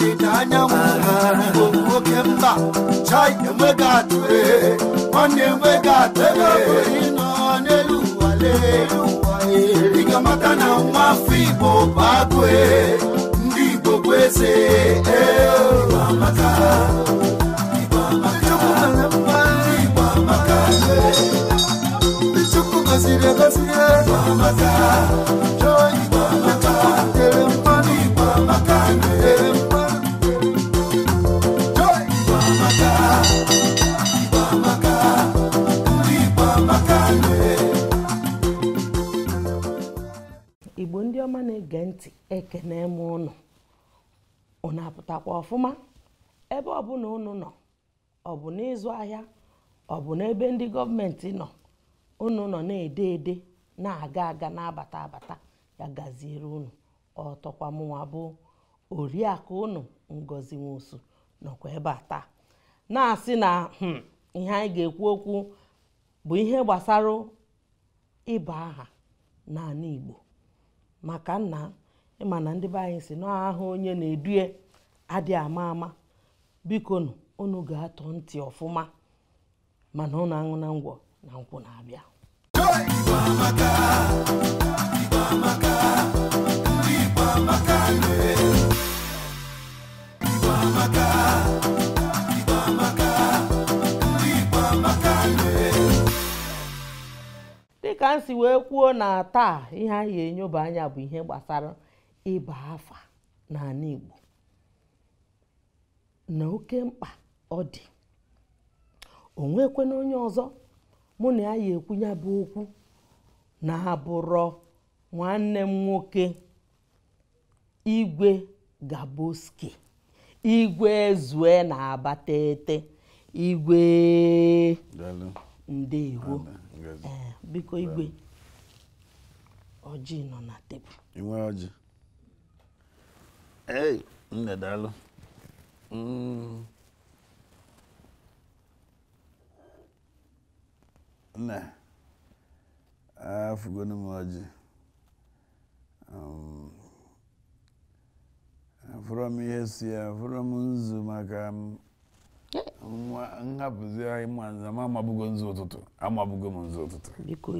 ọdịda anyanwụ i ndị ọma na-ege ntị ekene m ụnụ ọ na-apụtakwa ọfụma ebe ọbụla ụnụ nọ ọ bụ n'ịzụ ahịa ọ bụ n'ebe ndị gọọmenti nọ ụnụ nọ na-ede ede na-aga aga na-abata abata ya gaziere ụnụ ọtọkwa mụnwa bụ oriakụ ụnụ ngozi nwosu nọkwa ebe a taa na-asị na hmm, ihe anyị ga-ekwu okwu bụ ihe gbasara ịba aha n'ala Igbo maka nna ịma na ndị be anyị si ahụ onye na-edue adị ama ama biko nụ unu ga-atọ ntị ọfụma mana unu aṅụ na ngwọ na nkwụ na-abịa dịka m wee kwuo na taa ihe anyị enyoba anya bụ ihe gbasara ịba afa n'ala Igbo na oke mkpa ọ dị o nwekwe na onye ọzọ mụ na ya ya ekwu ya bụ okwu na-abụrọ nwanne m nwoke igwe gaboski igwe ezue na-abatete igwe ndewo Eh, biko igwe ojii nọ na tebụl inwe ọjị ei nne daalụ mm. nne afụgonu m ọjị um, afụrọ m ihe si ya afụrọ m nzu maka m Nwa eh. nhapụzi anyị ma nzama amabugo nzu ụtụtụ amabugo m nzu ụtụtụ Biko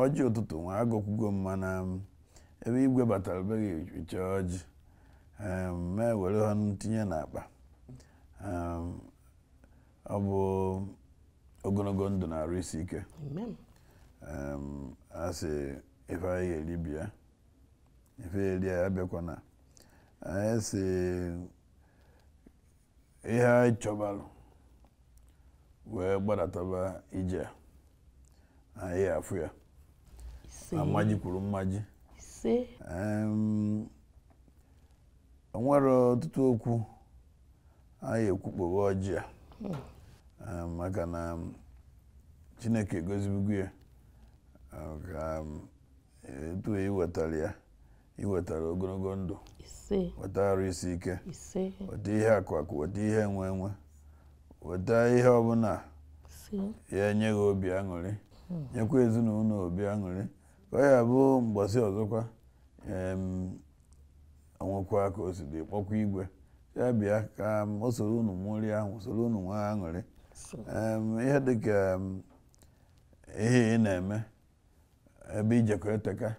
ọjị ụtụtụ nwa agụkwugo m mana ebe igwe batara beghị uche ọjị ma ewere ha tinye n'akpa ọ bụ ogologo ndụ na-arụ isi ike a sị ife anyị ga-eri bịa ife eri ya abịakwana anyị si. ihe anyị chọbalụ wee gbadataba ije anyị afụ ya amaji kwuru mmaji o nwere ọtụtụ okwu anyị ekwukpowe ọjị a maka na Chineke egozibugo ya ka etu iwetara e ya ị wetara ogologo ndụ weta arụ isi ike weta ihe akụakụ weta ihe enwe enwe. weta ihe ọbụla ya enye gị obi aṅụrị hmm. nyekwa ezinụlọ obi aṅụrị ka ọ ya bụ mgbasi ọzọkwa onwekwa ka o siri kpọkwa igwe ya bịa ka o soro unu mụrị ahụ soro unu nwa aṅụrị ihe dịka ihe ị na-eme ebe ijekọ eteka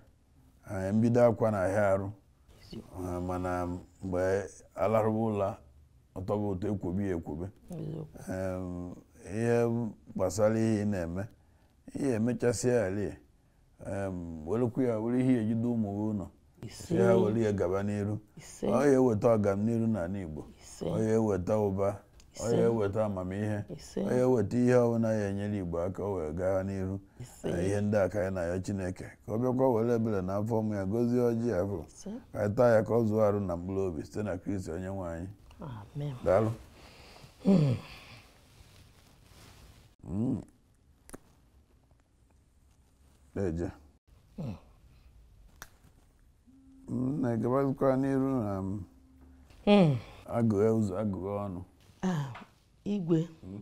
mbido akwa na ahịa arụ mana mgbe alarụba ụla ọtọgo ụtọ ekwobe ya ekwobe ihe gbasara ihe na-eme ihe emechasịa ala welekwu ya were ihe ejide ụmụ gị ụnọ ha were ya gaba n'iru ọ ya eweta n'ala Igbo ọ ya eweta ụba ọ ya eweta amamihe ọ ya eweta ihe ọbụla ya enyere Igbo aka o wee gaa n'ihu na ihe ndị aka anyị na ya Chineke ka ọ bịakwa were ebere na afọ ụmụ ya gozie ọjị ya bụ ka anyị taa ya ka ọ zụọ arụ na mkpụrụ obi site na Kristi onye nwe anyị daalụ hmm. Hmm. eje hmm. na n'iru na agụghe ụzọ agụghe ọnụ igwe hmm?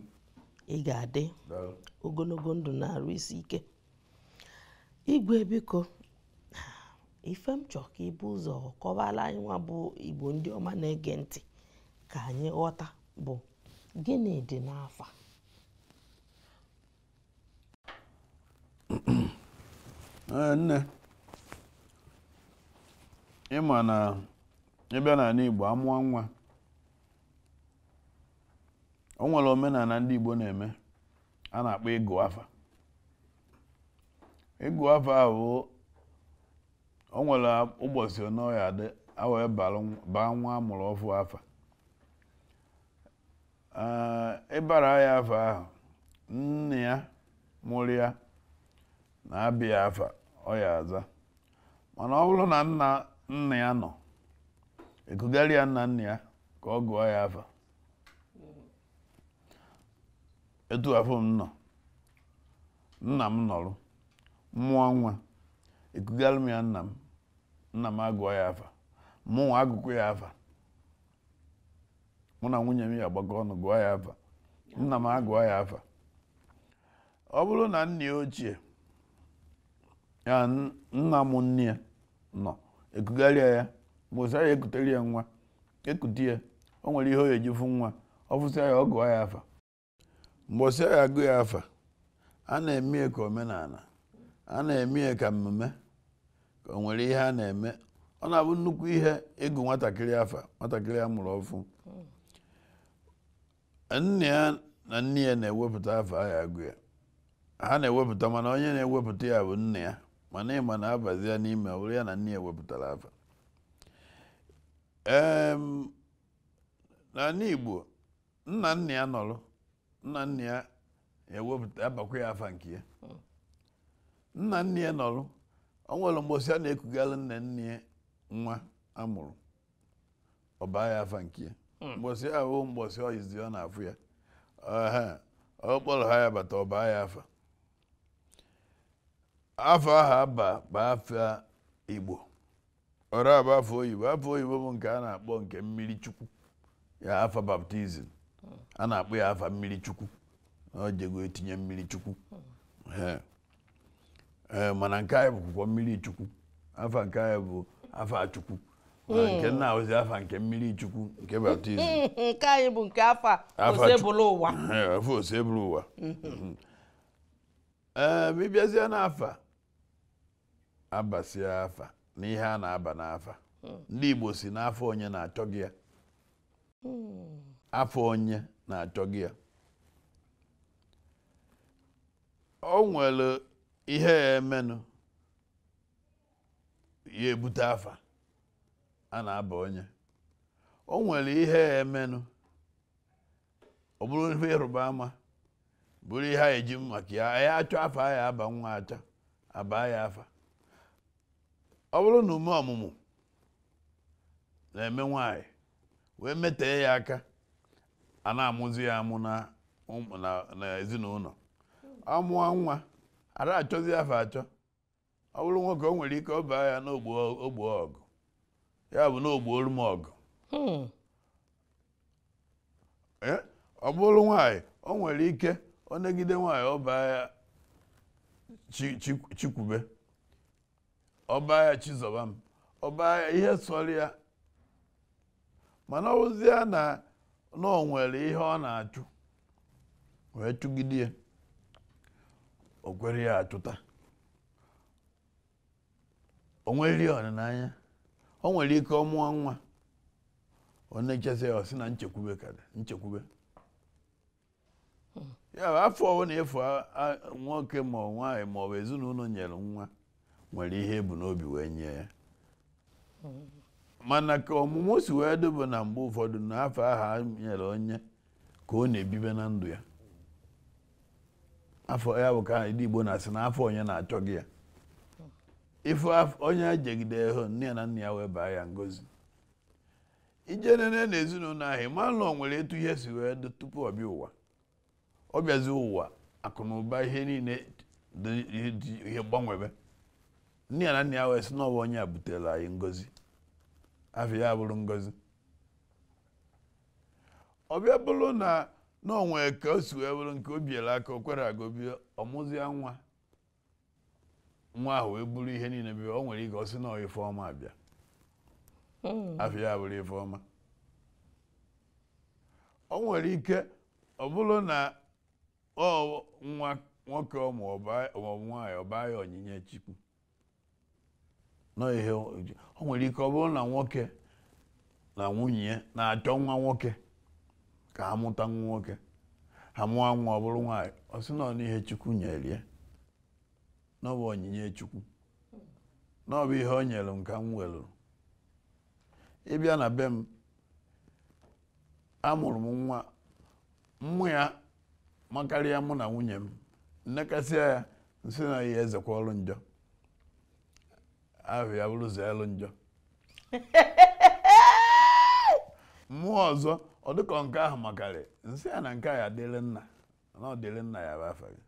ị ga-adị ogologo ndụ na arụ isi ike igwe biko ife m ka ibu ụzọ kọwara anyị nwa bụ igbo ndị ọma na-ege ntị ka anyị ghọta bụ gịnị dị n'afa eh, nne ịma na ịbịa n'ala igbo amụọ nwa o nwere omenala ndị Igbo na-eme a na-akpọ ịgụ afa ịgụ afa ahụ o nwere ụbọchị ọnọya adị awee baa nwa amụrụ ọfụ afa ịbara ya afa ahụ nne ya mụrụ ya na-abịa afa ọ aza mana ọ bụrụ na nna nne ya nọ ekugharị ya nna nna ya ka ọ gụọ ya afa etu afọ m nọ nna m nọrọ, mụọ nwa ekugara m ya nna m nna m agụọ ya afa mụnwa agụkọ ya afa mụ na nwunye m ya agbakọ ọnụ gụọ ya afa nna m agụọ ya afa ọ bụrụ na nna ya ochie ya nna m nne ya nọ ekugharịa ya mgbe ụsara ya ekutere ya nwa ekute ya o nwere ihe o eji fụ nwa ọ fụsịa ya ọ gụọ ya afa mgbosi a ga-agụ ya afa a na-eme ka omenala a na-eme ka mmemme ka o nwere ihe a na-eme ọ na-abụ nnukwu ihe ịgụ nwatakịrị afa nwatakịrị a mụrụ ọfụ nne ya na nne ya na-ewepụta afa a ya agụ ya ha na-ewepụta mana onye na-ewepụta ya bụ nne ya mana ịma na-abazi ya n'ime ya na nne ya wepụtara afa ee n'ala Igbo nna nna ya nọrọ nna nna ya ewepụta abakwa ya afa nke ya nna nna ya nọrọ ọ nwere mgbosi a na-ekugara nne nne ya nwa amụrụ ọba ya afa nke ya mgbosi hmm. ahụ mgbosi ọyizi ọ na-afụ ya ọ kpọrọ ha ya bata ọba ya afa afọ ahụ aba bụ afọ igbo ọrụ abụ afọ oyibo afọ oyibo bụ nke a na-akpọ nke mmiri chukwu ya afọ baptizim a na-akpọ ya afa mmiri chukwu ọ jego etinye mmiri chukwu mana nke anyị bụkwụkwọ mmiri chukwu afa nke anyị bụ afa chukwu hmm. nke nna ozi afa nke mmiri chukwu nke baptizim nke anyị bụ nke afa osebụlụ ụwa afa osebụlụ ụwa hmm. hmm. ee eh, ma n'afa abasịa afa na ihe a na-aba n'afa ndị Igbo si n'afọ onye na-achọ gị ya afọ onye na-achọ gị ya o nwere ihe ya emenụ ya ebute afa a na-aba onye o nwere ihe ya emenụ ọ bụrụ ihe ịrụba ama bụrụ ihe a eji maka ya ya achọ afa ya aba nwa acha abaa ya afa ọ bụrụ na ume ọmụmụ na-eme nwanyị wee metee ya aka a na-amụzi ya amụ na ezinụlọ amụọ nwa ara achọzi afọ achọ ọ bụrụ nwoke o nwere ike ọ baa ya n'ogbo ọgụ ya bụ n'ogbuoru m ọgụ hmm. ọ bụrụ nwaanyị o nwere ike ọ negide nwaanyị ọ baa ya chikwube ọ baa ya chizọba m ọ baa ya ihe sọrọ ya mana ọ bụzi ya na na nwere ihe ọ na-achụ wee chụgide ya o kwere ya achụta o nwere ọdịnanya o nwere ike ọ mụọ nwa ọ na ya sị na nchekwube ka nchekwube ya afọ ọbụ na efu nwoke ma ọ nwaghị ma ọ bụ ezinụlọ nyere nwa nwere ihe ebu n'obi wee nye ya mana ka ọmụmụ si wee dobe na mgbe ụfọdụ na n'afọ ahụ nyere onye ka ọ na-ebibe na ndụ ya afọ ya bụ ka ndị Igbo na-asị na afọ onye na-achọ gị ya ife onye ejegide hụ nne ya na nna ya wee baa ya ngozi ije nene na ezinụlọ ahụ ịmalụ nwere etu ihe si wee dị tupu ọ bịa ụwa ọ bịazi ụwa akụnụba ihe niile dị ihe gbanwebe nne ya na nna ya wee sị na ọwa onye a butere anyị ngozi afọ ya bụrụ ngozi ọbịa bụrụ na n'onwe ka o si wee bụrụ nke o biela aka o kwere agobie ọmụzịa nwa nwa ahụ wee bụrụ ihe niile bi o nwere ike ọ sị na ife ọma abịa hmm. afọ ya bụrụ ife ọma o nwere ike ọ bụrụ na ọ nwa nwoke ọbụ nwaanyị ọ ya onyinye Chukwu nọ ihe o nwere ike ọ bụrụ na nwoke na nwunye ya na-achọ nwa nwoke ka ha mụta nwa nwoke ha mụọ nwa ọ bụrụ nwaanyị ọ sị nọ n'ihe chukwu nyere ya na ọ bụ onyinye chukwu na ihe o nyere m ka m welụrụ ịbịa na be m amụrụ m nwa mmụ ya makarịa mụ na nwunye m nnekasịa ya nsị na ezekwa ọrụ njọ ahụ ya bụrụzi elu njọ mmụọ ọzọ ọ dịkọ nke ahụ makarị nsị ya na nke a ya dịrị nna na ọ dịrị nna ya bụ afa gị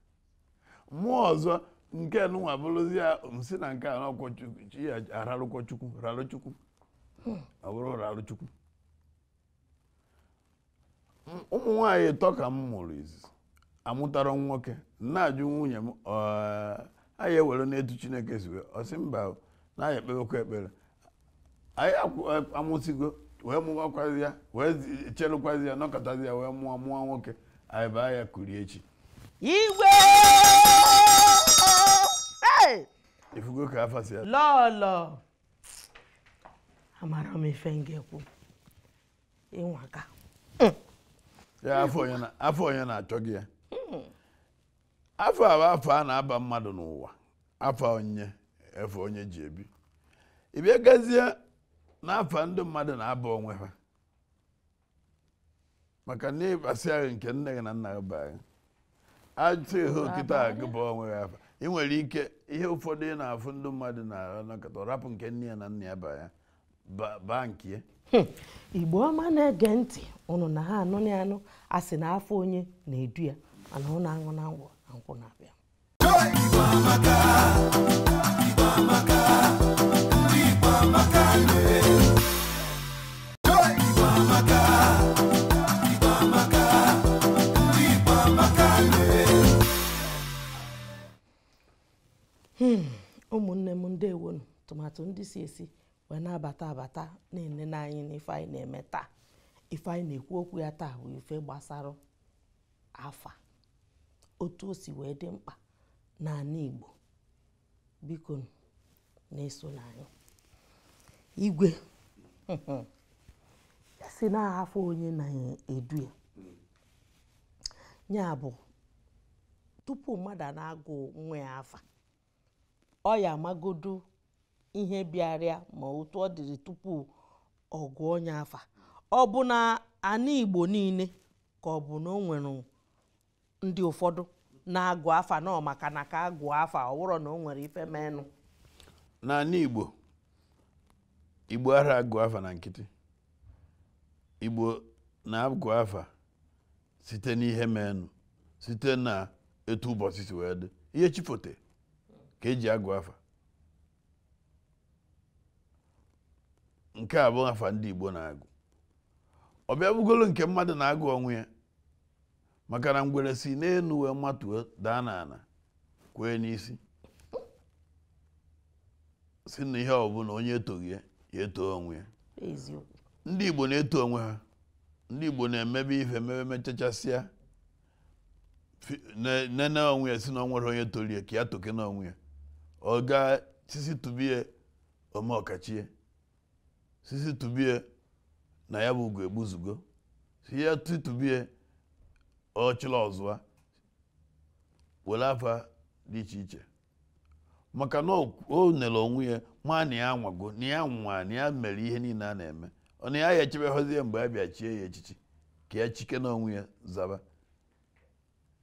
mmụọ ọzọ nke nụnwa bụrụzi ya nsị na nke a n'ọkwọchi ya ararụkwọ chukwu ọ bụrụ rarụ chukwu ụmụ nwanyị ịtọ ka m mụrụ izizi amụtara nwoke nna ajụ nwunye m anyị ewere n'etu chineke ziwe ọ sị mba na-aya ekpebekwa ekpere anyị amụsigo wee mụwakwazi ya wee chelụkwazi ya nọkọtazi ya wee mụọ mụọ nwoke anyị baa ya kurie echi igwe ifugo ka afasi mm. ya lọlọ amara m ife ngekwu ịnwaka ya mm. afọ onye na-achọ gị ya afọ a bụ afọ a na-aba mmadụ n'ụwa afọ onye efe onye ji ebi ị bịa gazie n'afọ ndị mmadụ na-aba onwe ha maka na ịbasị ahụ nke nne gị na nna gị baa ajụta ihe okịta a gị bụ onwe gị afa ị nwere ike ihe ụfọdụ ị na-afụ ndị mmadụ na-ahụ nakọta rapụ nke nne ya na nna ya baa ya baa nke hmm. igbo ọma na-ege ntị ụnụ na ha anụ na anụ a sị na afọ onye na-edu ya mana ọ na-aṅụ na ngwụ na nkwụ na-abịa Hmm, ụmụnne m ndị ndewonu tụmatụ ndị si esi wee na-abata abata na-enene anyị n'ife anyị na-eme taa ife anyị na-ekwu okwu ya taa bụ ife gbasara afa otu o si wee dị mkpa n'ala Igbo biko na-eso n'anyị igwe si na-ahafụ onye na-edu ya ya bụ tupu mmadụ na-agụ nwa ya afa ọ ya amagodu ihe bịarịa ma otu ọ dịrị tupu ọ gụọ onye afa ọ bụ na ana Igbo niile ka ọ bụ na o nwere ndị ụfọdụ na-agụ afa nọ maka na ka agụọ afa ọ na o nwere ife menụ n'ala Igbo Igbo ara agụ afa na nkịtị Igbo na-agụ afa site n'ihe menụ site na etu ụbọchị si wee dị ihe chifote ka eji agụ afa nke a bụ afa ndị Igbo na-agụ ọ bịa nke mmadụ na-agụ ọnwụ ya maka na ngwere si n'elu wee matuo daa n'ala kwee n'isi si na ihe ọbụla onye etoghị ya eto onwe ya ndị Igbo na-eto onwe ha ndị Igbo na-emebe ife emebe mechachasịa nene onwe ya si na onwere onye ya ka ya toke na onwe ya ọ gaa sisi tubie ome ọkachie sisi tubie na ya bụ ugo egbuzugo si ya ọ ọchịla ọzụwa were afa dị iche iche maka na o nere onwe ya maa na ya nwago na ya nwa na ya mere ihe niile a na-eme ọ na ya ya echebeghozie mgbe a bịa chie ya echichi ka ya chike n'onwe ya zaba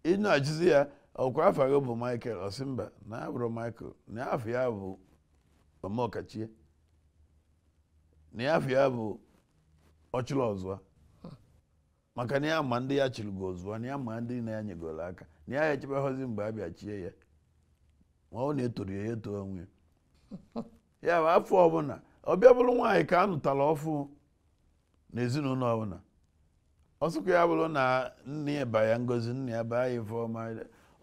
ị na ya ọkwa afọ gị bụ michael osimba na ya michael na ya afọ ya bụ ọmọkachie na ya afọ ya bụ ọchịrị maka na ya ma ndị ya chịrịgo ọzụwa na ya ma ndị na ya nyegoro aka na ya ya hozi mgbe a bịa chie ya ma ọ na-etoro ya eto onwe ya bụ afọ ọbụla ọbịa bụrụ nwaanyị ka a nụtara ọfụ n'ezinụlọ ọbụla ọsụkwa ya bụrụ na nne ya ba ya ngozi nne ya baa ya ifeọma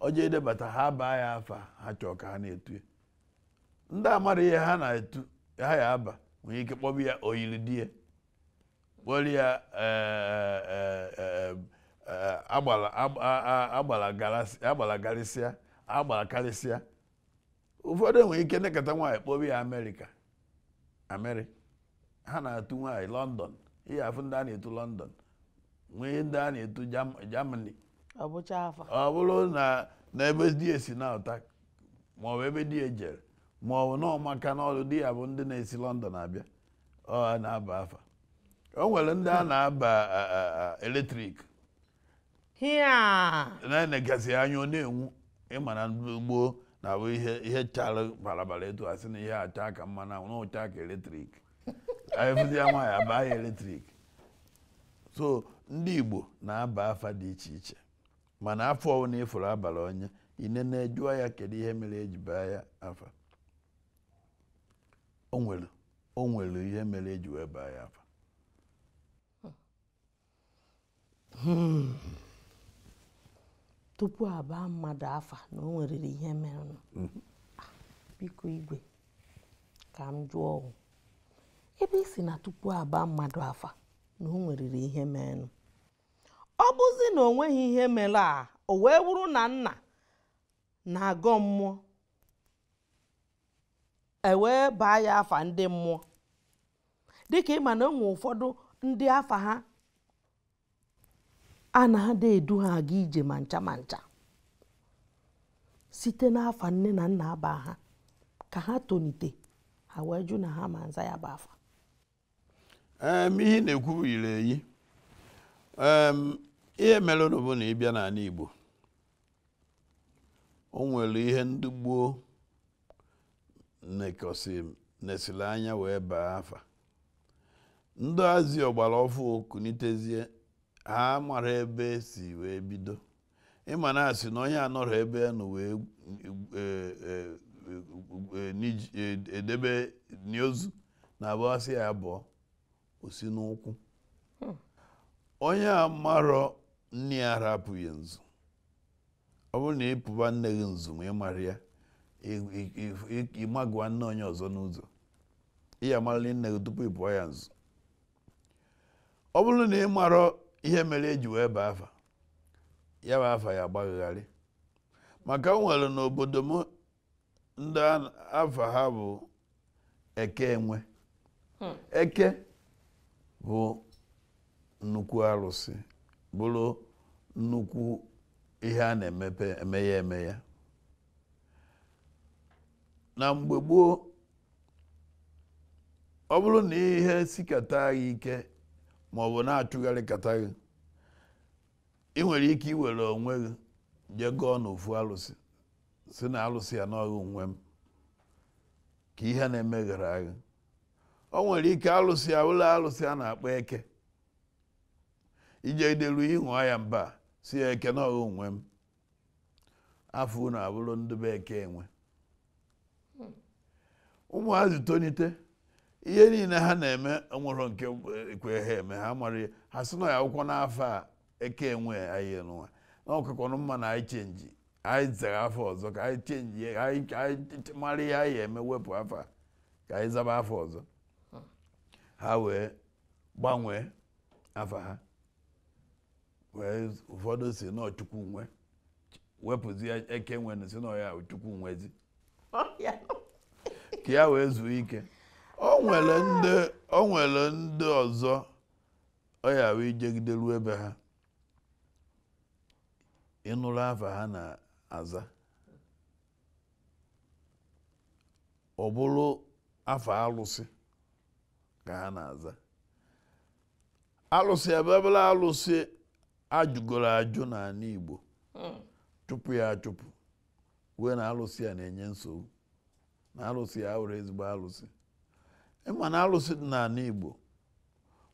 ọjọ edebata ha baa ya afa ha chọọ ka ha na-etu ndị amara ihe ha na-etu ha ya aba nwere ike kpọbụ ya oyiri di ya kpọrọ ya e, e, e, agbala garịsịa agbala karịsịa ụfọdụ enwere ike nekọta nwaanyị kpọbi ya amerịka ameri ha na-atụ nwaanyị lọndọn ihe afụ ndị a na-etu lọndọn nwee ndị a na-etu jamani ọ bụrụ na n'ebe di esi na-ụta maọbụ ebe di ejere e maọbụ na ọmaka di ya bụ ndị na-esi lọndọn abịa ọ na-aba afa o nwere ndị a na-aba eletrik na-enegasị anya ọ na-enwu ịma na gboo na ihe ihe bara balabala etu asị na ihe acha ka mma na na ụcha ka eletrik efụzi ya nwaanyị abaa ya eletrik so ndị Igbo na-aba afa dị iche iche mana afọ ọwụ na ịfụrụ abalị onye na jụọ ya kedu ihe mere eji baa ya afa o nwere nwere ihe mere eji wee baa ya afa hmm. tupu abaa mmadụ afa na o nwere ihe merenụ mm-hmm. biko igwe ka m jụọ ebe isi na tupu abaa mmadụ afa na o nweriri ihe merenụ ọ bụzi na o nweghị ihe mere a o wee wuru na nna na-agọ mmụọ ewee baa ya afa ndị mmụọ dịka ịma na enwe ụfọdụ ndị afa ha a na-ada edu ha aga ije ma ncha site n'afa nne na nna aba ha ka ha tonite ha wee jụ na ha ma nza ya bụ afa ihe na-ekwu yiri eyi ihe mere na ịbịa n'ala Igbo o nwere ihe ndị gboo nesiri anya wee baa afa ndị azi ọgbara ọfụ kunitezie ha mara ebe si wee bido ịma na asị na onye anọrọ ebe nọ wee e, e, e, edebe n'ozu na abụasị ya abụọ osi n'ụkwụ onye a marọ nne ya arapụghị nzu ọ bụrụ na ịpụba nne gị nzu ma ị mara ya ịmagụwa nne onye ọzọ n'ụzọ ị ya nne gị tupu ịpụọ ya nzu ọ bụrụ na ịmarọ. ihe mere eji wee baa afa ya bụ afa ya agbagharị maka nwere n'obodo m ndị afa ha bụ eke enwe hmm. eke bụ nnukwu arụsị bụrụ nnukwu ihe a na-emepe emeghe na mgbe gboo ọ bụrụ na ihe sikata agha ike ma ọ bụ na achụgharịkata gị ị nwere ike iwere onwe gị jee gụọ n'ofu alụsị si na alụsị ya n'ọghị onwe m ka ihe na-emeghara gị o nwere ike alụsị ya ụlọ alụsị a na-akpọ eke ije idelu ịṅụọ ya mba si ya eke n'ọghị onwe m afọ na abụrụ ndụbe eke enwe hmm. ụmụazị tonite ihe niile ha na-eme nwere nke ekwe eh, ha eme ha mara ha si na ya akwụkwọ n'afọ a eke enwe anyị nwa na ọkụkọnụ mma na anyị chenji anyị zere afọ ọzọ ka anyị chenji anyị mara ihe anyị eme wepụ afọ a ka anyị zaba afọ ọzọ ha wee gbanwee afọ ha wee ụfọdụ si na chukwu nwe wepụzi eke nwe si na ya chukwu nwezi ka ya wee zuo ike Ọ nwere ndị ọ nwere ndị ọzọ ọ yara ijegidelu ebe ha ịnụrụ afa ha na-aza ọ bụrụ afa alụsị ka ha na-aza alụsị ebebere alụsị ajụgoro ajụ n'ala Igbo hmm. chụpụ ya achụpụ wee na alụsị a na-enye nsogbu na alụsị ya were ezigbo alụsị ịma e na alụsị dị n'ala Igbo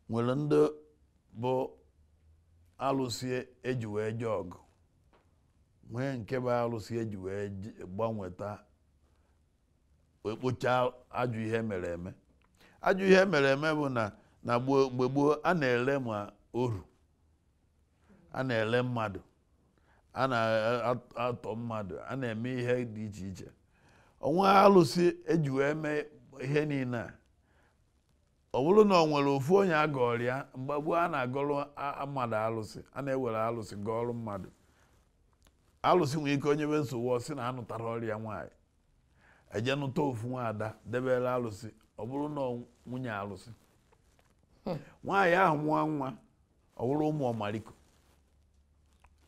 nwere ndị bụ alụsị eji wee je ọgụ nwee nke bụ alụsị eji wee gbanweta ekpocha ajụ ihe mere eme ajụ ihe mere eme bụ na na mgbe gboo a na-ele ma oru a na-ele mmadụ a na-atọ mmadụ a na-eme ihe dị iche iche onwe alụsị eji wee mee ihe niile a ọ bụrụ na ọ nwere ofu onye mgbe gboo a na agọrọ mmadụ alụsị a na-ewere alụsị gọọrụ mmadụ alụsị nwere ike onye nwe nsogbu ọ na anụtara ọrịa nwaanyị eje nụta ofu ada debere alụsị ọ bụrụ na nwunye alụsị nwaanyị ahụ nwa nwa ọ bụrụ ụmụ ọmariko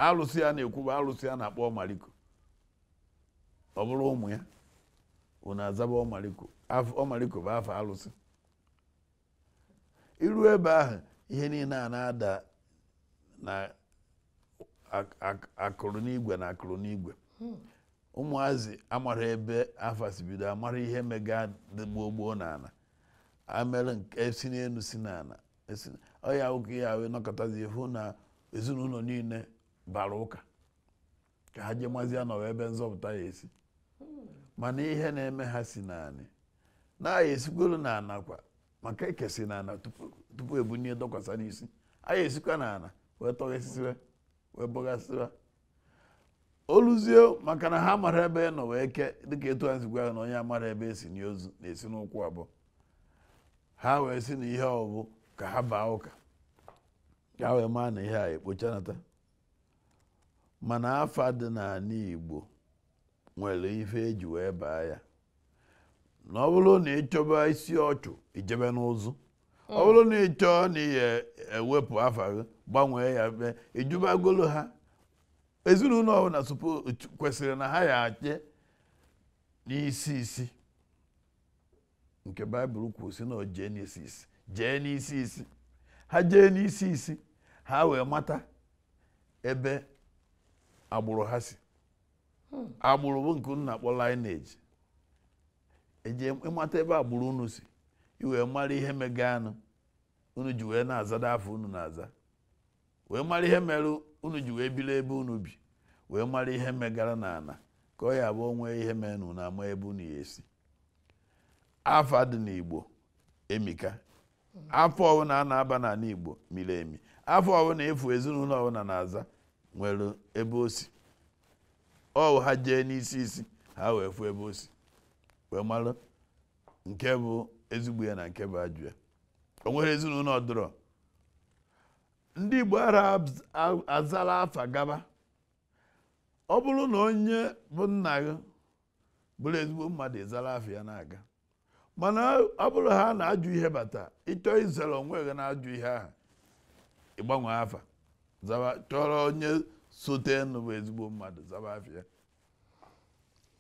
alụsị ya na-ekwu bụ alụsị a na-akpọ ọmariko ọ bụrụ ụmụ ya unu azaba ọmariko ọmariko bụ afọ alụsị iru ebe ahụ ihe niile a na-ada na akụrụ n'igwe na akụrụ n'igwe ụmụazị amara ebe afasibido amara ihe mega dị gboo gboo n'ala amere esi e n'elu si n'ala e ọya ụka ya wee nọkọtazi hụ na ezinụlọ niile bara ụka ka ha jee nọ ebe nzọpụta ya esi hmm. mana ihe na-eme ha si naanị na-aya esikwelu na kwa. maka ekesi na ala tupu ebunye dọkwasa n'isi a ya esikwa na ala wee tọghesịwa wee bọghasịwa oluzie maka na ha mara ebe e nọ wee ke dịka etu ha sikwa na onye amara ebe esi n'ozu na-esi n'ụkwụ abụọ ha wee si na ihe bụ ka ha baa ụka ka wee maa na ihe a ekpochanata mana afa dị n'ala Igbo nwere ife eji wee baa ya na ọ bụrụ na ịchọba isi ọchụ ijebe n'ụzụ ọ bụrụ na ịchọ na ihe ewepụ afa gị gbanwee ya mbe ijubagolo ha ezinụlọ ọbụla kwesịrị na ha ya ache n'isi isi nke baịbụl kwuru si na jee n'isi isi jee n'isi isi ha jee n'isi isi ha wee mata ebe agbụrụ ha si hmm. agbụrụ bụ nke nna kpọ lineage eje ịmata ebe agbụrụ unu si iwee mara ihe anụ unu ji wee na-azada afọ unu na-aza wee mara ihe mere unu ji wee biri ebe unu bi wee mara ihe megara na ana ka ọ ya bụ onwe ihe mere na unu ama ebe unu ya esi afọ dị n'Igbo emika afọ ọbụla a na-aba n'ala Igbo miri emi afọ ọbụla efu ezinụlọ ọbụla na-aza nwere ebe o si ọ ha jee n'isi isi ha wee fụ ebe o si wee mara nke bụ ezigbo ya na nke bụ ajụ ya o nwere ezinụlọ ọdụrọ ndị Igbo ara azala afa gaba ọ bụrụ na onye bụ nna gị bụrụ ezigbo mmadụ ịzala afa ya na-aga mana ọ bụrụ ha na-ajụ ihe bata ịchọọ izere onwe gị na-ajụ ihe ahụ ịgbanwe afa chọrọ onye sote nụ bụ ezigbo mmadụ zaba afa ya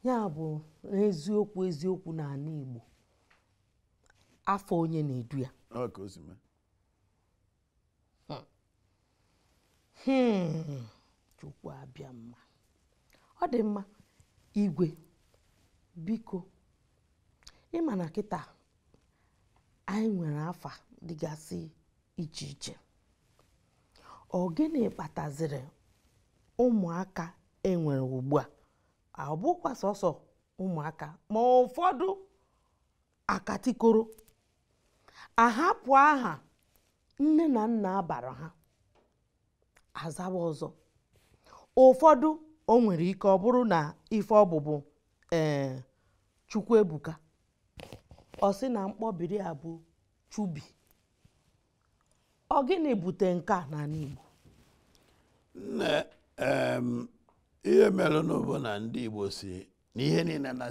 ya bụ n'eziokwu eziokwu n'ala Igbo afọ onye na-edu ya hmm. Hmm. chukwu abịa mma ọ dị mma igwe biko ịma na kịta anyị nwere afa dịgasị iche iche ọ gịnị kpataziri ụmụaka enwere ugbu a ọ bụkwa sọsọ ụmụaka ma ụfọdụ akatikoro ahapụ aha nne na nna abara ha azaba ọzọ ụfọdụ o nwere ike ọbụrụ na ife ọbụbụ ee eh, Chukwuebuka ọ sị na mkpọbiri a bụ Chubi ọ gịnị bute nke a n'ala Igbo nne ihe mere na ndị Igbo si na ihe niile na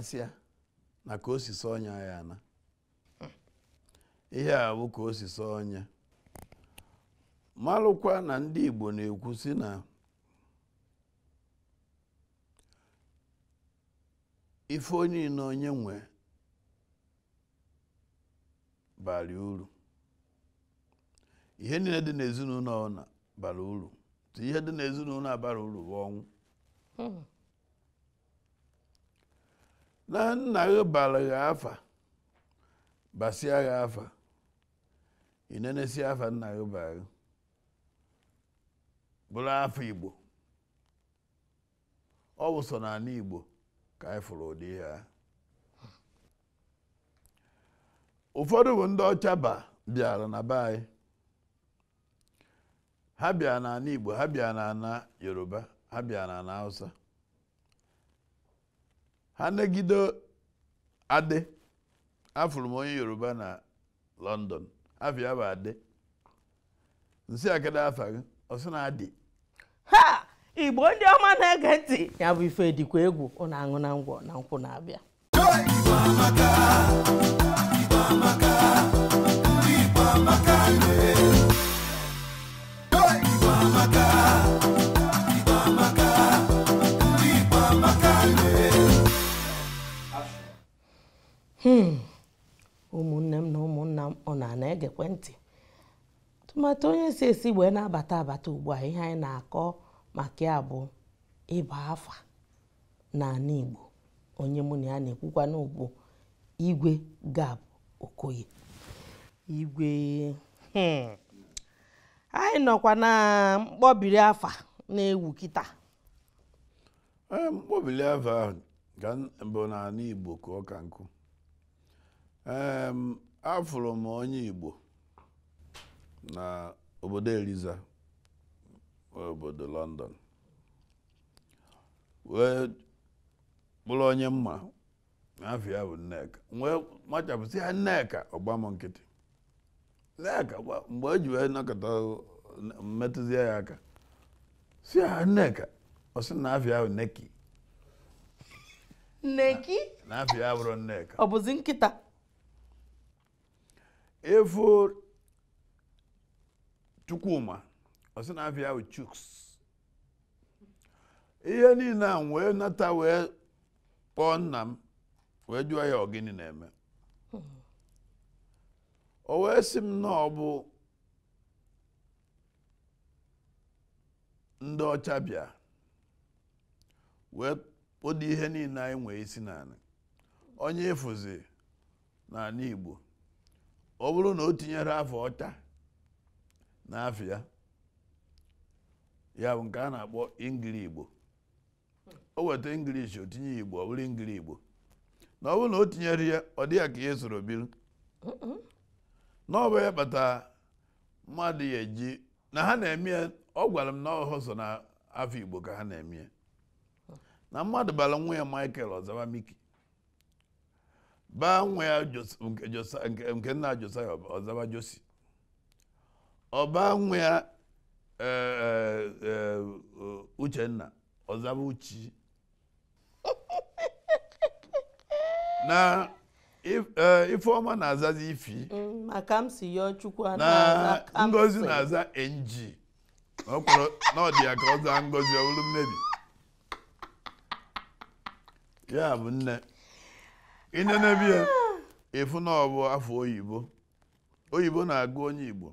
na ka osisi si sọ ọnya ya na ihe a bụ ka osisi si sọ ọnya malụkwa na ndị Igbo na-ekwu si na ife onye na onye nwe bara uru ihe niile dị n'ezinụlọ na bara uru ihe dị n'ezinụlọ abara uru bụ ọnwụ hmm. na nna gị bara gị afa basịa gị afa inenesie afa nna gị bara gị bụrụ afa igbo ọ bụ so igbo ka anyị fụrụ ụdị ihe a ụfọdụ bụ ndị ọcha bịara na be anyị ha bịara n'ala igbo ha bịara n'ala yoruba ha bịara n'ala hausa anagide a adị afụrụ m onye yoruba na london afịa bụ adị nsị akada afa gị ọsị na adị ha igbo ndị ọma na-ege ntị ya bụ ife dịkwa egwu ụna aṅụ na ngwọ na nkwụ na-abịa Hmm. ụmụnne m na ụmụnna m ọ na-ana egekwe ntị tụmatụ onye si esi wee na-abata abata ugbu a ihe anyị na-akọ maka ya bụ ịba afa n'ala Igbo onye mụ na ya na-ekwukwa n'ugbo Igwe Gab Okoye Igwe hmm. anyị nọkwa na mkpọbiri afa na-ewu kịta eh, mkpọbiri afa bụ n'ala Igbo ka ka nkụ afụrụ m onye Igbo na obodo Eliza obodo London wee bụrụ onye mma ya bụ Nneka wee machapụsị ya Nneka ọgba m nkịtị Nneka mgbe o ji wee nọkọta mmetụzie ya aka si ya Nneka ọ sị na afịa bụ Neki Neki na bụrụ Nneka ọ bụzi nkịta efor chukwuma ọsị na afịa ahụ chuks ihe niile a wee nata wee kpọọ nna m wee jụọ ya ọgịnị na-eme o wee sị m na ọ bụ ndị ọcha bịa wee kpọdo ihe niile anyị nwee isi naanị onye efuzi na Igbo ọ bụrụ na o tinyere afọ ọcha n'afọ ya ya bụ nke a na-akpọ ngiri igbo o weta ingilishi o tinye igbo ọ bụrụ ngiri igbo na ọ bụrụ na o tinyere ya ọ dịghị ka ihe soro biri na ọ bụ ya mmadụ ya eji na ha na-eme ya ọ gwara m na ọhụ so na afọ igbo ka ha na-eme ya na mmadụ bara nwa ya Michael Ọzaba Miki baa nwa ya nke nna Josaya ọzaba Josi ọbaa nwa ya e, e, e, Uchenna ọzaba Uchi na Ifeọma na-azazi ifi mm, na Ngozi na-aza enji na ọ dị ya ka ọ zaa Ngozi bụrụ mmebi ya bụ nne ịnenebe ya ịfụ na ọ bụ afọ oyibo oyibo na-agụ onye igbo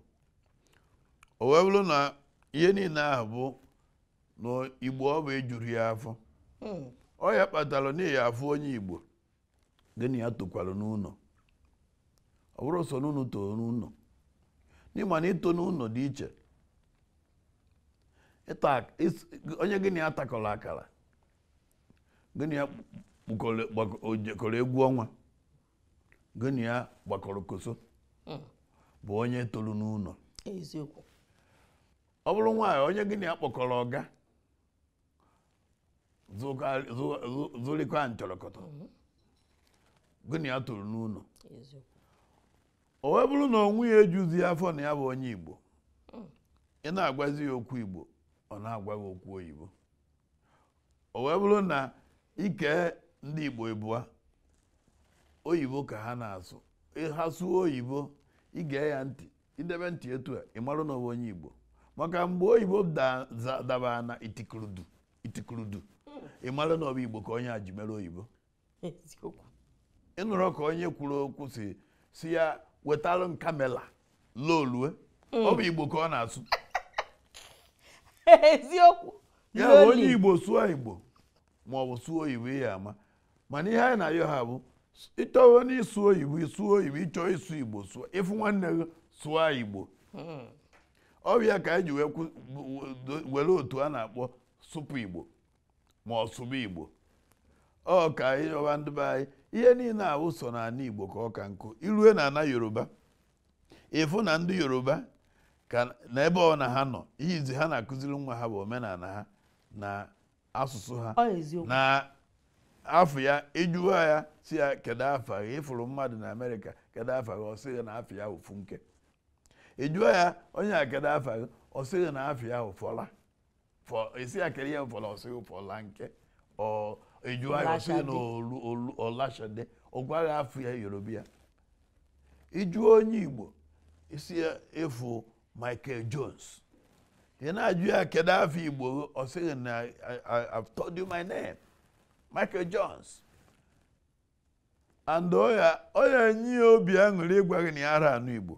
o wee bụrụ na ihe niile ahụ bụ na igbo ọ bụ ejuru ya afọ hmm. ọ ya kpatara n'ihi afọ onye igbo gịnị ya tokwara n'ụlọ ọ bụrụ so n'ụlọ too n'ụlọ n'ịma na ito n'ụlọ dị iche onye gịnị ya takọrọ akara gịnị kọrọ egwu ọnwa gịnị a ya gbakọrọ koso hmm. bụ onye toro n'ụlọ ọ bụrụ nwaanyị onye gịnị na ya kpọkọrọ ọga zụrịkwa ntọrọkọtọ gị ya tolu n'ụlọ o wee bụrụ na onwe ya ejuzi afọ na ya bụ onye Igbo hmm. ị na-agwazi ya okwu Igbo ọ na-agwa gị okwu oyibo o wee bụrụ na ike ndị Igbo ịbụa oyibo ka ha na-asụ ha sụọ oyibo ige ya ntị idebe ntị etu a ịmarụ na onye Igbo maka mgbe oyibo daba na itikurudu ịmarụ na ọbụ Igbo ka onye a ji mere oyibo ịnụrụ ka onye kwuru okwu si si ya wetalụ kamela lolue ọ bụ Igbo ka ọ na-asụ eziokwu ya onye Igbo sụọ Igbo ma ọ bụ sụọ oyibo ihe ama mana ihe anyị na-ayọ ha bụ ịchọwo n'ịsụ oyibo ịsụ oyibo ịchọọ ịsụ igbo ịfụ nwanne gị sụọ igbo ọrịa ka anyị ji were otu a na-akpọ sụpụ igbo ma ọ igbo ọ ka anyị yọba ndị be anyị ihe niile ahụ so igbo ka ọ ka nkụ irue na ana yoruba ịfụ na ndị yoruba ka na ebe ọ na ha nọ ihe izi ha na-akụziri nwa ha bụ omenala ha na asụsụ ha na afọ ya ịjụwa e ya si ya kedu afọ ya ịfụrụ mmadụ na amerika kedu afọ gị ọ sị na afọ ya ofu nke ịjụwa e ya onye a kedu afọ ya ọ sị na afọ ya ụfọla esi ya kere ya ụfọla ọ sị gị ụfọla nke ọ ya ọ sị na ọlashade ọ gwaghị afọ ya yoruba ya ịjụọ e onye igbo isi ya ịfụ michael jones ị na-ajụ ya kedu afọ igbo ọ sị na I've told you my name. Michael Jones and ọ na-enye ya obi aṅụrị ịgwa gị na ya ara anụ Igbo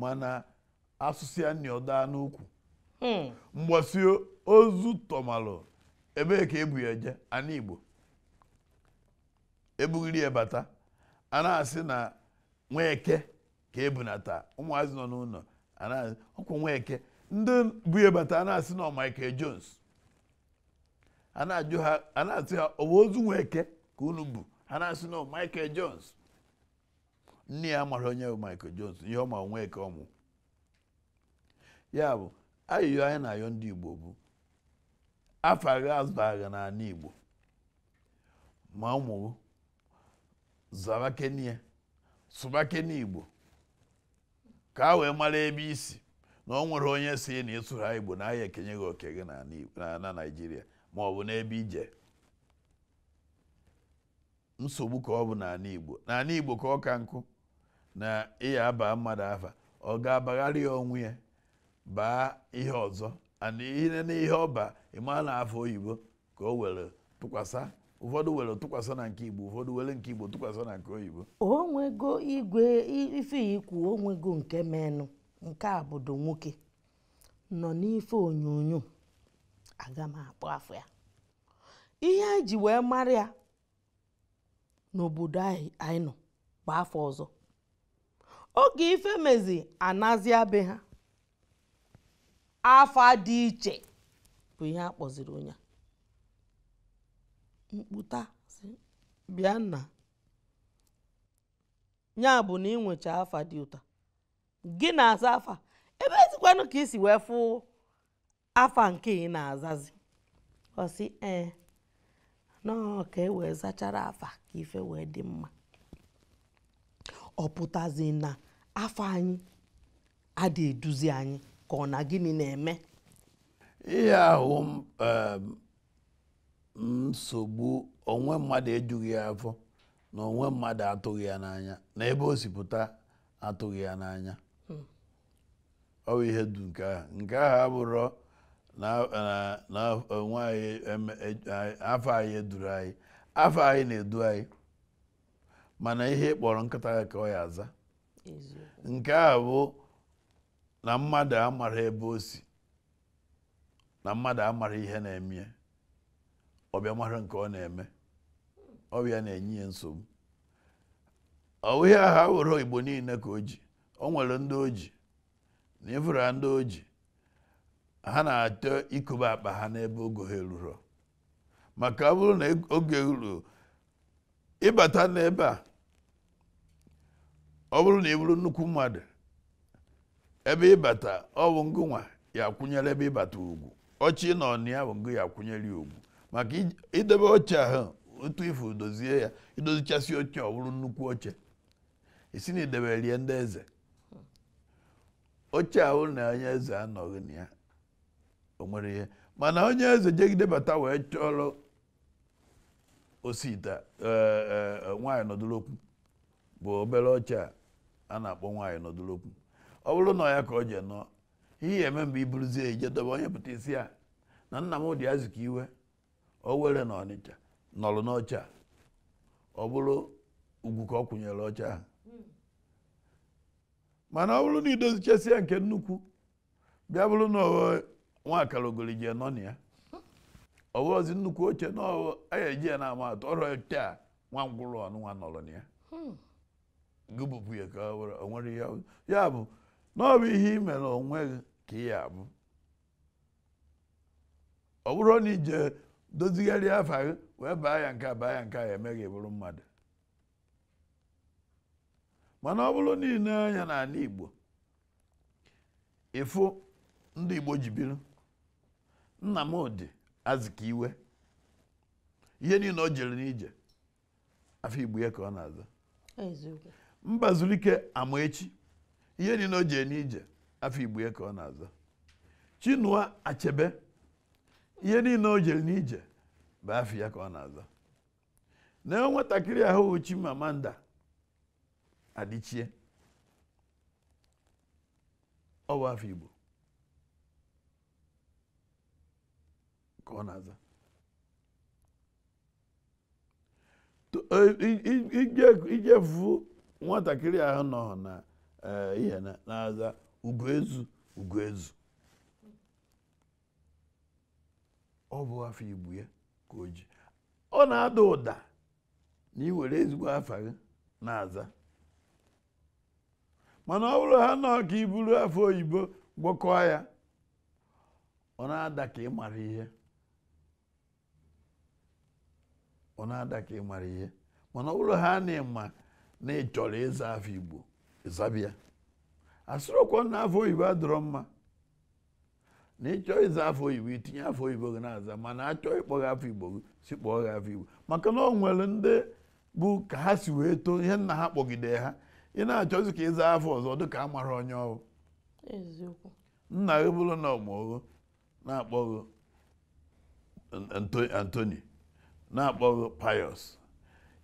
mana asụsụ ya nọdaa n'ukwu hmm. mgbasi ozu tọmalụ ebe ka ebu ya eje anụ Igbo ebughiri ya bata a na-asị na nweke ka ebunata ụmụazị nọ n'ụlọ ọkwụ nweke ndị bu ya bata a na-asị na Michael Jones a na-asị ha ọ bụ ozu nwa eke ka unu bụ ha na-asị na Michael Jones nne ya mara onye bụ Michael Jones ihe ọma nwa eke ọmụ ya bụ ayịyọ anyị na-ayọ ndị Igbo bụ afọ agha azụba agha n'ala Igbo ma ụmụ zaba kenie Igbo ka a wee mara ebe isi na ọ nwere onye si na ịsụrụ Igbo na ahịa ekenye gị oke gị na naijiria. ma ọ bụ n'ebe ije nsogbu ka ọ bụ n'ala Igbo n'ala Igbo ka ọ ka nkụ na ịya aba mmadụ afa ọ ga-abagharị ya onwe ya baa ihe ọzọ ana ihe na ọba ịma na afọ oyibo ka o were tụkwasa ụfọdụ were tụkwasa na nke Igbo ụfọdụ were nke Igbo tụkwasa na nke oyibo onwego igwe ife ikwu onwego nke menụ nke a nwoke nọ n'ife onyonyo aga m akpọ afọ ya ihe e ji wee mara ya n'obodo anyị nọ bụ afọ ọzọ oge ife mezi anazịa be ha afa dị iche bụ ihe a kpọziri onye mkputa bịa nna ya bụ na ị nwecha afa dị ụta gị na-asa afa ebe ezikwanụ ka isi wee fụ afa nke ị na-azazi ọsị ee nọọ ka e wee zachara afa ka ife wee dị mma ọ pụtazi na afọ anyị adị eduzi anyị ka ọ na gịnị na-eme ihe ahụ ehm, nsogbu onwe mmadụ ejughị afọ na onwe mmadụ atụghị ya n'anya na ebe o atụghị ya n'anya hmm. ọ bụ ihe du nke ahụ nke ahụ abụrụ Eh, na onwe anyị e, afọ anyị eduru anyị afọ anyị na-edu anyị mana ihe kpọrọ nkata ya ka ọ ya aza nke a bụ na mmadụ amara ebe o si na mmadụ amara ihe na-eme ọbịa mara nke ọ na-eme ọbịa na-enye ya nsogbu ọwụ ihe ahụ were igbo niile ka o ji o nwere ndị oji na ifụra ndị oji ha na-achọ ikobe akpa ha n'ebe oge ha eruru maka ọ bụrụ na e-, oge ruo ịbata n'ebe a ọ bụrụ na ị e bụrụ nnukwu mmadụ ebe ịbata ọ bụ ngụnwa ya akwụnyere ebe ịbata ugwu ọchị na ọnụ bụ ngụ ya kwụnyere ya ugwu maka idebe oche ahụ otu ifu dozie ya idozichasị oche ọ bụrụ nnukwu oche isi na idebe rie ndị eze oche ahụ na onye eze anọghị na ya onwere ihe mana onye eze jegidebata wee chọrọ osita ite e, e, e, nwaanyị nọdụlokwu bụ obere ọcha a na-akpọ nwaanyị nọdụlokwu ọ bụrụ na ya ka ọ je nọ ihe eme mgbe i ije dobe onye pụta isi a na nna m dị azụ ka iwe o were na ọnịcha nọrụ n'ọcha ọ bụrụ ugwu ka ọ kwụnyere ọcha ahụ mana ọ bụrụ na idozichesia nke nnukwu bịa bụrụ na nwaakara ogoliji nọ na ya ọghọzi nnukwu oche na anyị eji ya na-ama atụ ọrụ a nwa ngwụrụ nwa nọrọ na ya hmm. gụbụpụ ya ka nwere ihe ya bụ na ọ bụ ihe i mere onwe ka ị ya abụ ọ bụrụ na ije dozigharị afọ gị wee baa ya nke a baa ya nke a emeghị bụrụ mmadụ mana ọ bụrụ niile anya n'ala Igbo ịfụ ndị Igbo ji biri Nnamdi Azikiwe ihe niile o jere n'ije afọ Igbo ya ka ọ na-aza Mbazulike Amaechi ihe niile o jere n'ije afọ Igbo ya ka ọ na-aza Chinua Achebe ihe niile o jere n'ije bụ afọ ya ka ọ na-aza na e nwatakịrị ahụ Chimamanda ọ bụ afọ Igbo Eh, ije هذا ijefu nwatakịrị ahụ nọ na eh, ihe na-aza ugoezu ezu ọ bụ afọ igbu ya ka o ji ọ na-ada ụda na ị nwere ezigbo afọ gị na-aza mana ọ bụrụ ha nọ ka iburu afọ oyibo gwọkọọ ya ọ na-ada ka ị mara ihe ọ na-ada ka ị mara ihe mana ọ bụrụ ha na ịma na ị chọrọ ịza afọ igbo ịzabịa asịrịokwa na afọ oyibo adọrọ mma na ịchọ ịza afọ oyibo itinye afọ oyibo gị na-aza mana achọọ ịkpọ gị afọ igbo gị si kpọọ gị afọ igbo maka na ọ nwere ndị bụ ka ha si wee too ihe nna ha kpọgide ha ị na-achọzi ka ịza afọ ọzọ dị ka a mara onye ọrụ nna gị bụrụ na ọmụgho na-akpọ gị Antoni na-akpọghị payọs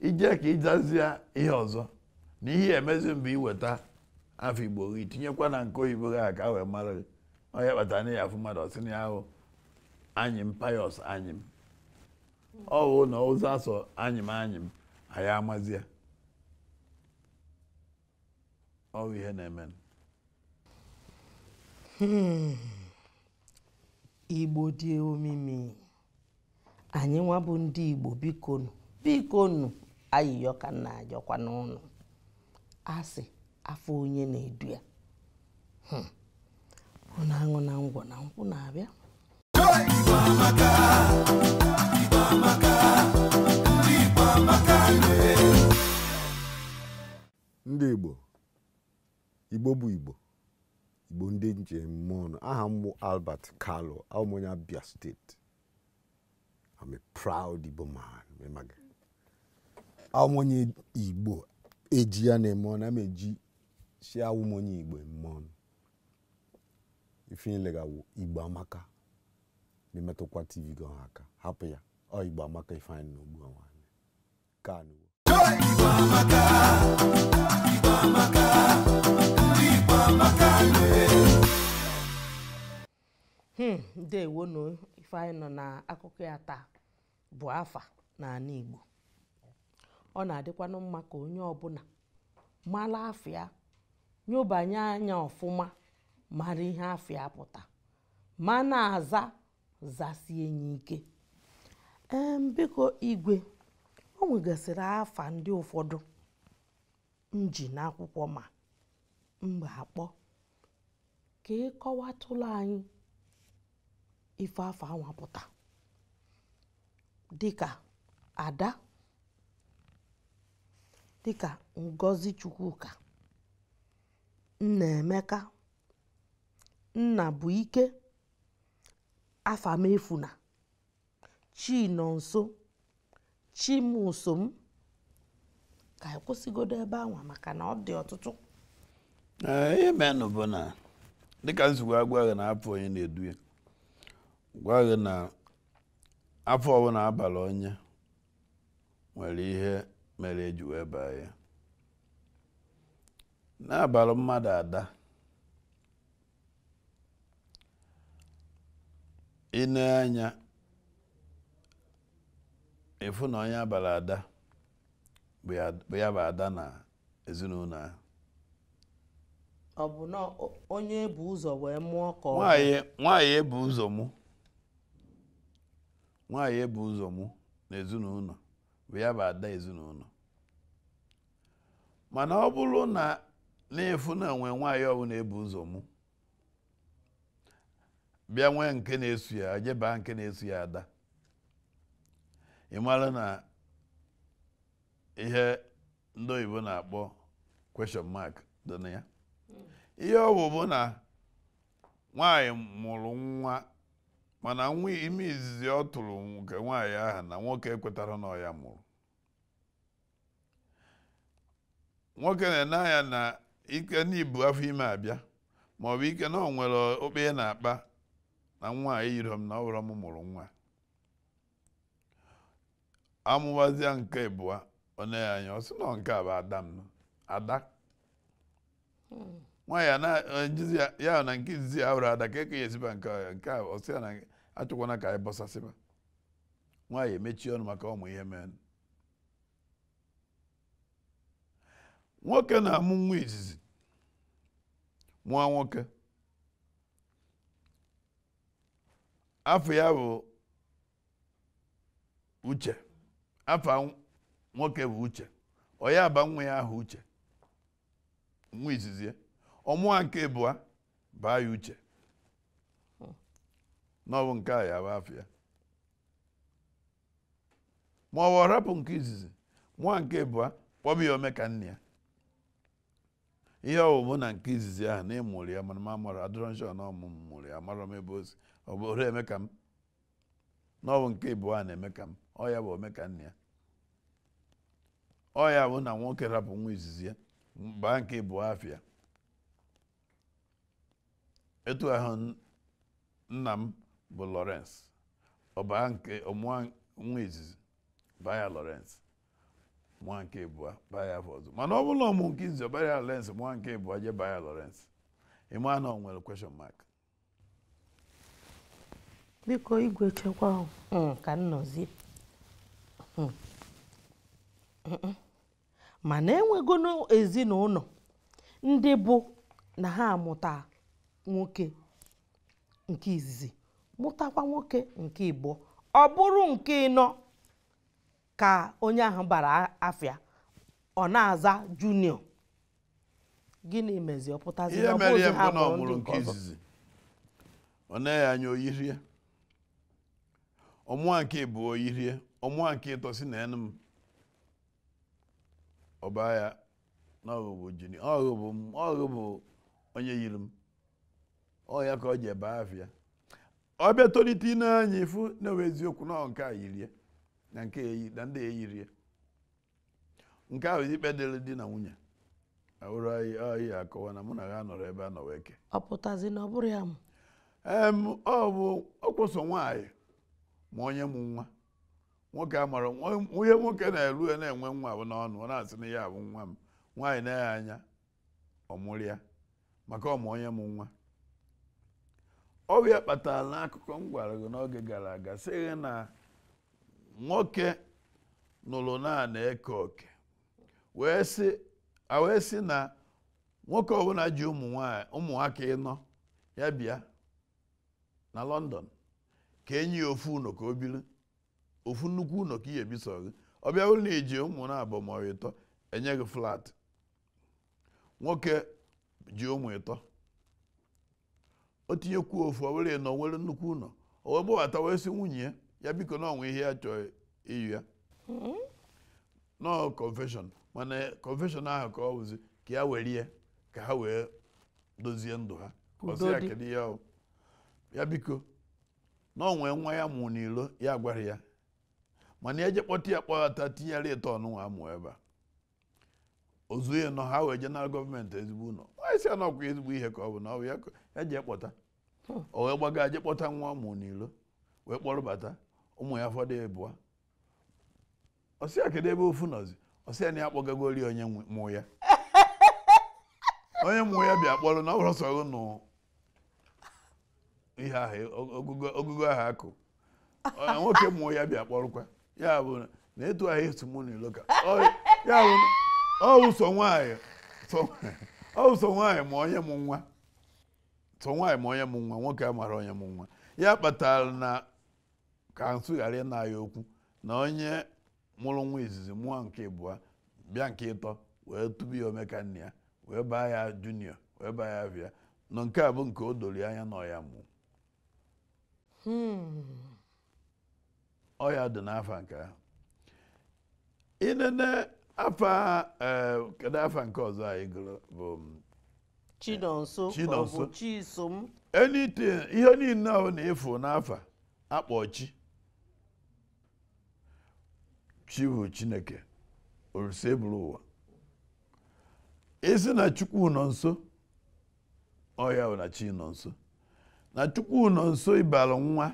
ije ka ịjazie ihe ọzọ na ihe emezi mbụ iweta afọ igbo gị tinyekwa na nke oyibo gị a ka wee mara gị onye kpatara na ya afụ mmadụ na ahụ anyị m payọs anyị m ọwụ na ụzọ asọ anyị m anyị m anyị amazie ihe na-eme hmm. Igbo dị omimi anyị nwa bụ ndị Igbo bikonu bikonu ayịyọ ka nna ajọkwa n'ụlọ asị afọ onye na-edu ya hmm. na aṅụ na ngwọ na nkwụ na-abịa ndị Igbo Igbo bụ Igbo ndị njem mmụọ aha mbụ Albert Kalu aụmụnya m steeti I'm a proud Igbo man. Awụ m onye Igbo eji ya na-eme ọnụ, ama eji si awụ onye Igbo eme ọnụ. Ifinye legawo Igbo amaka memetụkwa TV gị ọha hapụ ya ọ Igbo amaka Ifeanyị na ogbu ọnwa ka anụwo Igbo amaka Igbo amaka ndị Igbo amaka hmm, ndewo ifeanyị nọ akụkọ ya taa bụ afa na n'ala Igbo ọ na-adịkwanụ mma ka onye ọbụla mara afịa nyobanye anya ọfụma mara ihe afịa pụta ma na-aza zasie enyi ike ee biko igwe o nwegasịrị afa ndị ụfọdụ m ma mgbe akpọ ka ịkọwatụlụ anyị ife afọ anwapụta dịka ada dịka ngozi chukwuka nnaemeka ike afamefuna nso chimusom ka kwụsịgodo ebe anwa maka na ọ dị ọtụtụ ihe menụ bụ na dịka nzukọ agwa na-apụ onye na-edu gwa gị na afọ ọbụla abalị onye nwere ihe mere eji wee baa ya n'abalị mmadụ ada ine anya efu na onye abalị ada bụ ya bụ ada na ezinụlọ ahụ ọ bụ na onye ebu ụzọ wee mụọ ka ọ nwaanyị ebu ụzọ mụ nwaanyị ebu ụzọ mụ na ezinụlọ bụ ya bụ ada ezinụlọ mana ọ bụrụ na na-efu na onwe nwaanyị ọbụla ebu ụzọ mụ bịa nwee nke na-esu ya jebaa nke na-esu ya ada ị mara na ihe ndị oyibo na-akpọ question mark dị na ya hmm. ihe ọ bụ bụ na nwaanyị mụrụ nwa mana nwa ime izizi ọ tụrụ nke nwaanyị ahụ na nwoke ekwetara na ya mụrụ nwoke na-ene anya na ike n'ibu afọ ime abịa ma ọ bụ ike na ọ nwere okpe na-akpa na nwaanyị yiri m na ọbụrụ m mụrụ nwa amụwazia nke abụọ one ya anya ọ sị na nke a bụ ada m hmm. ada nwaanyị ya na nke izizi ya hụrụ ada ka eke ya esiba nke ọ ya nke a ọ sị ya na achọkwana ka anyị bọsasịba nwaanyị emechie ọnụ maka ụmụ ihe mee nwoke na-amụ nwa izizi nwa nwoke afọ ya bụ uche afọ nwoke bụ uche ọ ya aba nwa ya ahụ uche nwa izizi ọmụwa nke bụa baa ya uche n'ọwụ nke a ya bụ afịa ma ọ bụ rapụ nke izizi nwa nke bụa kpọba ya ome ka nne ya ihe ọwụmụ na nke izizi ahụ na ịmụrụ ya mana m amụrụ adịrọ na ọmụmụ mụrụ ya amara m ebe ozi ọ bụrụ eme ka m n'ọwụ nke ịbụọ a na-eme ka m ọ ya bụ ome ka nne ya ọ ya bụ na nwoke rapụ nwa izizi ya baa nke ịbụọ afịa etu ahụ nna m bụ Lawrence ọbaa nke ọmụa nwa izizi baya Lawrence mụa nke ịbụa baya ya afọ ọzọ mana ọ bụrụ na ọmụ nke izizi ọbara baa Lawrence mụa nke ịbụa je baya Lawrence ịma na ọ nwere question mark biko igwe chekwa hmm, ka nnọzi hmm. mana enwego n'ezinụlọ ndị bụ na ha amụta nwoke nke izizi mụtakwa nwoke nke Igbo ọ bụrụ nke ịnọ ka onye ahụ bara afịa ọ na-aza junior gịnị mezi ọ pụtazi ihe mere ihe mbụ na ọ nke izizi ọ naghị anya oyirie ọmụa nke bụ oyirie ọmụa nke ịtọsi na enu m ọba ya na ọghụbụ junior ọghụbụ m ọghụbụ onye yiri m ọ ya ka ọ ji ebe afịa ọ bịa tolite ine anya ifu na-ewe eziokwu na nke a yirie na nke eyi na ndị eyirie nke ahụ ikpe dịrị di na nwunye ahụrụ anyị akọwa na mụ na ha nọrọ ebe a nọ wee ọ pụtazi na ọ bụrụ ya m ọ bụ ọkpọso nwaanyị ma onye mụ nwa nwoke amara onye nwoke na-eru e na-enwe nwa bụ n'ọnụ ọ na-asị na ya bụ nwa m nwaanyị na eghe anya ọmụrịa maka ọmụ onye mụ nwa ọrịa kpatara n'akụkọ m gwara gị n'oge gara aga sịghị na nwoke nụrụ naanị eke oke wee sị na nwoke ọbụla ji ụmụ ụmụaka ịnọ ya bịa na lọndọn ka enyi ofu ka ofu nnukwu ụnọ ka ihe biso gị ọ bịa ụlọ iji ụmụ na-abụ ma ịtọ enye gị flat nwoke ji ụmụ ịtọ o kwuo ofu owere na onwere nnukwu ụlọ o gbawata wee si nwunye ya ya biko na onwe ihe ya chọọ iyi ya nọọ confession mana confession ahụ ka ọ wụzi ka ya were ya ka ha wee dozie ndụ ha ọsị ya kedu ya ya biko na onwee nwa ya mụ n'ilo ya gwara ya mana eje kpọta ya kpọghata tinyere ịtọ ọnụnwa amụ ebe a ozu ya nọ ha wee je gọọmenti ezigbo ụlọ nwaanyị si na ọkwa ezigbo ihe ka ọ bụ na ọ bụ ya eji ekpọta o wee gbaga je kpọta nwa ụmụ n'ilo wee kpọrọ kpọrọbata ụmụ ya fọdụ abụọ ọsịa kedu ebe ofu nọzi ọsịa na ya akpọgagori onye mụ ya onye mụ ya bịa kpọrọ na ọ bụrụ sọrọ nụ ihe ahụ ogugo ahụ akụ nwoke mụ ya bịa kpọrọkwa ya bụ na etu ahụ esu mụ n'ilo ka ya bụ ọ wụso nwaanyị ọ wụso nwaanyị ma onye mụ nwa tụ nwaanyị ma onye mụ nwa nwoke a mara onye m nwa ya kpatara na ka nsụ ghara ịna okwu na onye mụrụ nwa izizi mụọ nke ịbụa bịa nke ịtọ wee tụbu ya omeka nne wee baa ya junior wee baa ya bịa nọ nke a bụ nke o doro anya na ọya mụ hmm. dị n'afọ nke ahụ eh, kedu afa nke ọzọ anyị gụrụ mm, chinonso chinonso chisom anything ihe niile ahụ na-efu n'afa akpọ chi chiwu chineke olise bụrụ ụwa isi e na chukwu nọ nso ọya na chi nọ nso na chukwu nọ nso ịbara nwa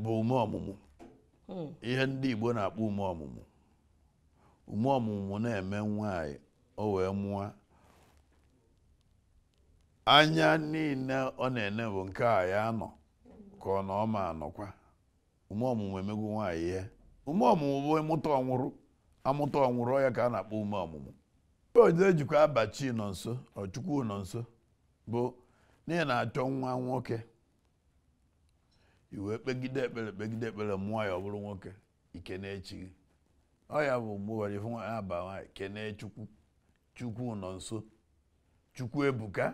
bụ ume ọmụmụ hmm. ihe ndị igbo na-akpọ ume ọmụmụ ume ọmụmụ na-eme nwaanyị o wee mụọ anya niile ọ na-ene bụ nke a ya nọ ka ọ na ọma anọkwa ume ọmụmụ emegwu nwaanyị ihe ume ọmụmụ bụ ịmụta ọnwụrụ amụta ọnwụrụ ya ka a na-akpọ ume ọmụmụ mgbe oje abachi nọ nso ọchukwu nọ nso bụ n'ihi na-achọ nwa nwoke iwe kpegide ekpere kpegide ekpere mụọ ya ọ bụrụ nwoke ike na-echi gị ọ ya bụ mgbe ụbọchị fụ nwaanyị aba nwaanyị kene echukwu chukwu nọ nso chukwu ebuka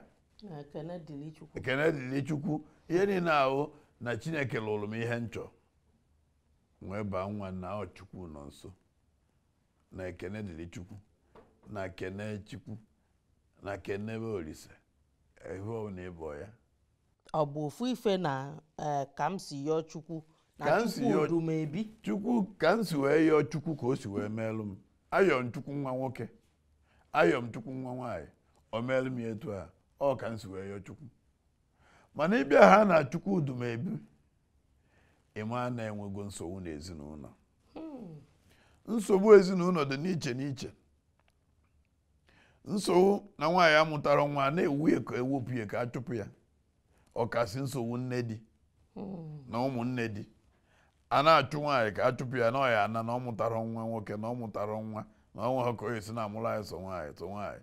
ekene dịrị chukwu ihe niile ahụ na chineke lụrụ m ihe nchọ wee baa nwa na ọchukwu chukwu nọ nso na ekene dịrị chukwu na kene chukwu na kenebe olise ehu na ịbọ ya ọ bụ ofu ife na eh, ka m si yọọ chukwu na chukwu odu m ebi chukwu ka m si wee yọọ chukwu ka o si wee meelụ m ayọm chukwu nwa nwoke m chukwu nwa nwaanyị o meelụ m etu a ọ ka nsi wee yọọ chukwu mana ịbịa ha na chukwu dumebi ịma na-enwego nsogbu na ezinụlọ hmm. nsogbu ezinụlọ dị n'iche n'iche nsogbu na nwaanyị amụtara nwa na-ewu ka ewepụ ya ka a chụpụ ya ọkasị nsogbu nne di hmm. na ụmụnne di a na-achụ nwaanyị ka a chụpụ ya na ọya ana na ọ mụtara nwa nwoke na ọ mụtara nwa na ọnwa nwe ha ka o esi na amụrụ anyị sọ nwaanyị sọ nwaanyị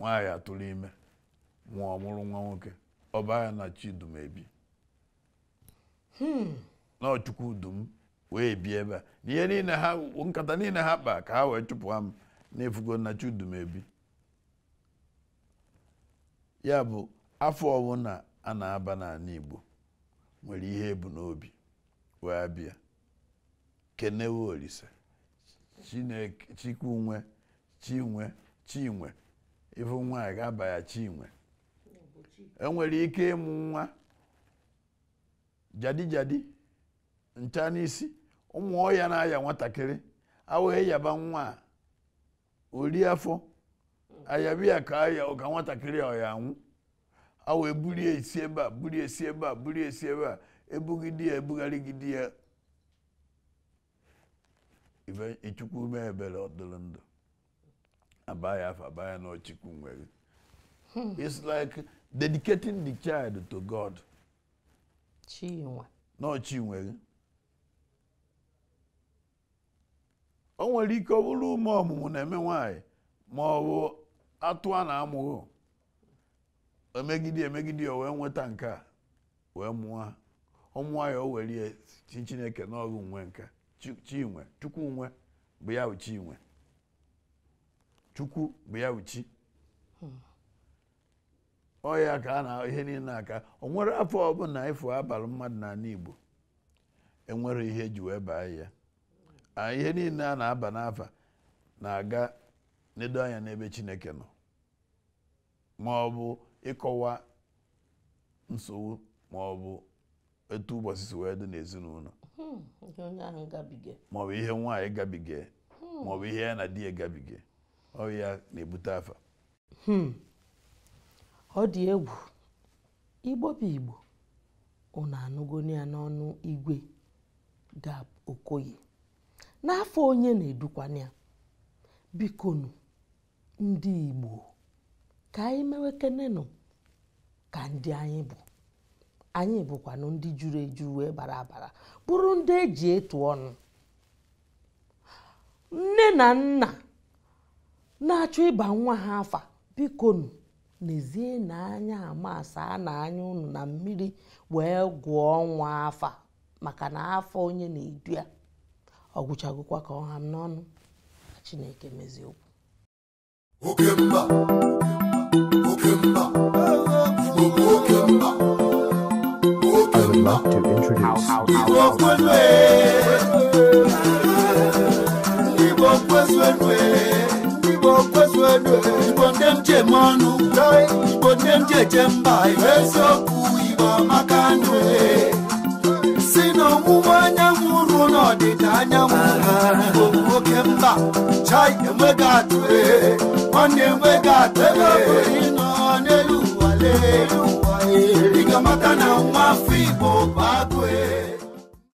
nwaanyị atụrụ ime nwa ọmụrụ nwa nwoke ọbaya na chidum ebi hmm. na wee bi ebe a na ihe niile ha nkata niile ha kpa ka ha wee chụpụ m na-efugo na chidum ya bụ afọ ọbụla a na-aba n'ala Igbo nwere ihe ebu n'obi wee bịa kenewe Olise Chineke Chikunwe Chinwe Chinwe Ifu nwa ga-abaghachi inwe enwere ike ịmụ nwa jadi jadi ncha n'isi ụmụ ọhịa na-aya nwatakịrị awụghị yaba nwa ori afọ ya ka aya ụka nwatakịrị a ya anwụ awa ebulie esi ebe a bulie esi ebe a bulie esi ebe a ebugide ya e ya ichukwu mee ebere abaya abaya na ọchịkwu nwere it's like dedicating the child to God n'ọchị na ọchinwere o nwere ike ọ bụrụ ume ọmụmụ na-eme nwanyị ma ọ bụ atụ a na amụrụ emegide emegide ya wee nweta nke a wee mụọ ọmụọ ya o were chineke n'ọrụ nwe nka chinwe chukwu nwe bụ ya bụ chinwe chukwu bụ ya uchi ọ ya ka a na ihe niile aka o nwere afọ ọbụla ịfụ abalị mmadụ na n'ala Igbo enwere ihe ji wee baa ya ihe niile a na-aba n'afa na-aga nedo anya n'ebe Chineke nọ ma ọ bụ ịkọwa nsogbu ma ọ bụ etu ụbọchị si wee dị n'ezinụlọ hmm, ma ọ bụ ihe nwaanyị gabiga ma ọ bụ ihe ya na di ya gabiga ọya na-ebute afa hmm. ọ dị egwu igbo bụ igbo unu anụgoni ya n'ọnụ igwe ga okoye n'afọ onye na-edukwana ya bikonu ndị igbo ka anyị mewekenenụ ka ndị anyị bụ anyị bụkwanụ ndị juru eju wee bara abara bụrụ ndị eji etu ọnụ nne na nna na-achọ ịba nwa ha afa bikonu n'ezie na anya ama a na anya ụnụ na mmiri wee gwụọ nwa afa maka na afọ onye na-edu ya ọ gwụchagokwa ka ọha ha n'ọnụ chineke mezie okwu obodo igbo ndị m ji eme ọnụ igbo ndị m ji eje mba eziokwu igbo amaka nụ si n'ọwụwa anyanwụ ruo n'ọdịda anyanwụ igbo bụ oke mba chai enweghị atụ nwanne enweghị atụ ebe ọbụla ịnọ n'elu ụwa lee ụwa ị ga-amata na nwa afọ igbo bụ agụ